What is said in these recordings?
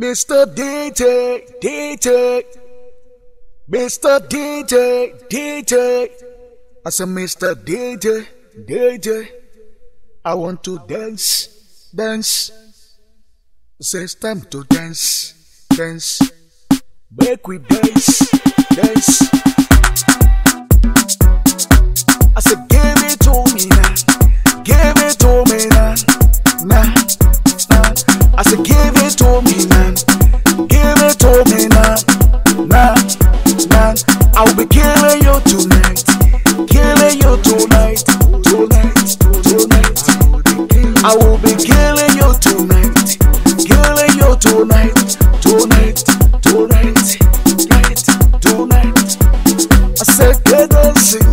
Mr. DJ, DJ, Mr. DJ, DJ. I said, Mr. DJ, DJ, I want to dance, dance. It's time to dance, dance. Make we dance, dance. I said, I'll be killing you tonight, killing you tonight, tonight, tonight. I will be killing you tonight, killing you tonight, tonight, tonight, tonight, tonight. I said, get dancing,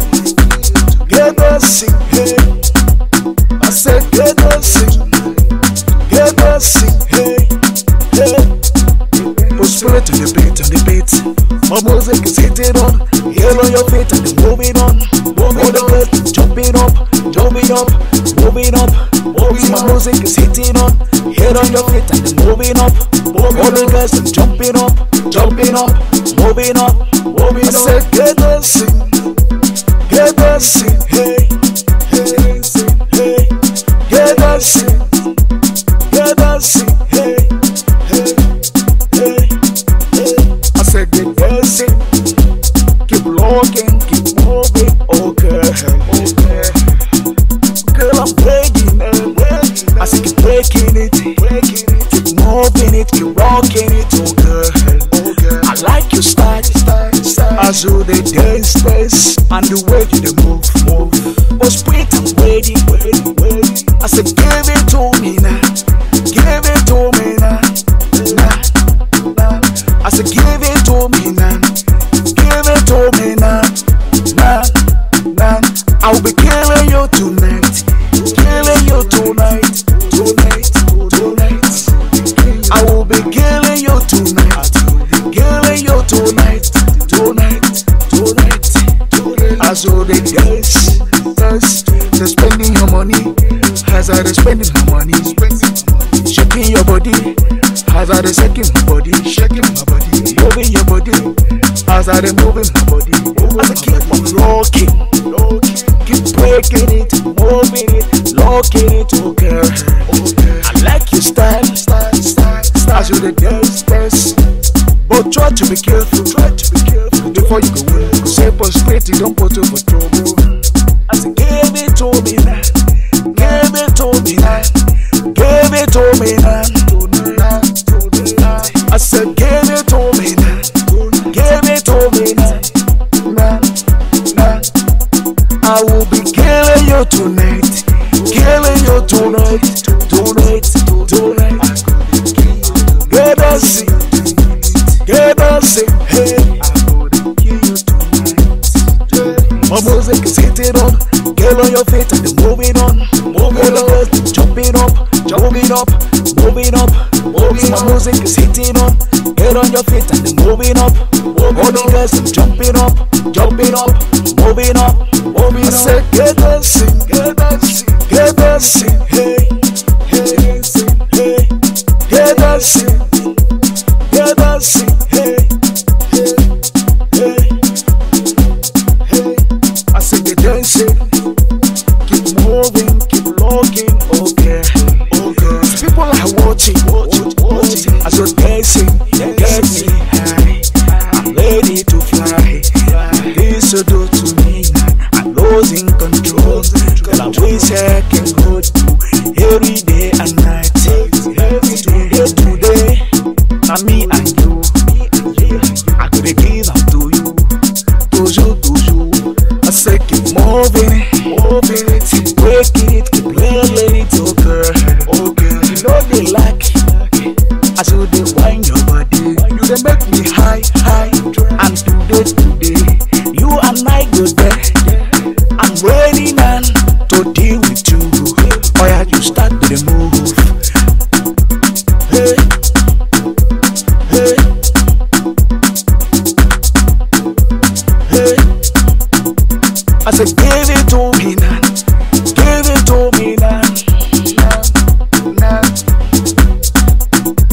get dancing, in, hey. I said, get dancing, get dancing. it up. Heel on your feet and move it on. Move it on. Jump it up. Jump it up. Move it up. Move it up. music is hitting on. Heel on your feet and move it up. Move All the girls and jump it up. Jump it up. Move it up. Move it up. I said, get dancing. Get dancing. Hey. Hey. Hey. Get dancing. Get dancing. Hey. Hey. Hey. I said, get You to walk in it, oh girl. Oh girl. I like your style, style, style. As you the dance, dance, and the way you the move, move. Was wait am waiting, waiting, waiting. I said, give it to me now, give it to me now, I said, give it to me now, give it to me now, now, now. I'll be carrying you tonight. As I dey shaking my body, shaking my body, moving your body. As I dey moving my body, as I keep on locking, locking, keep breaking it, moving it, locking it, oh girl. I like your style, style, style, style. As you dey dance, dance. But oh, try to be careful, try to be careful before you go Simple straight, you don't put over trouble. tonight, killing you tonight, tonight, tonight. Get us in, get us in, hey. My music is hitting on, get on your feet and moving on, moving on, jumping up, jumping up, moving up, moving up. My music is hitting on, get on your feet and moving up, moving on, jumping up, jumping up, moving up. Moving up. sé que sin So give it to me now. Give it to me now. now.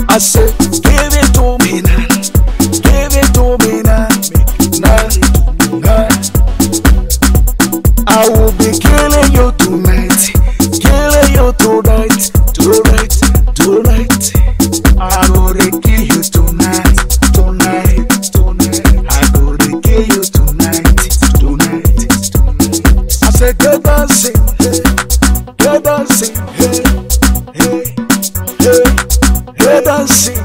I said. say go dancing, hey, go dancing, hey, hey, hey, go dancing.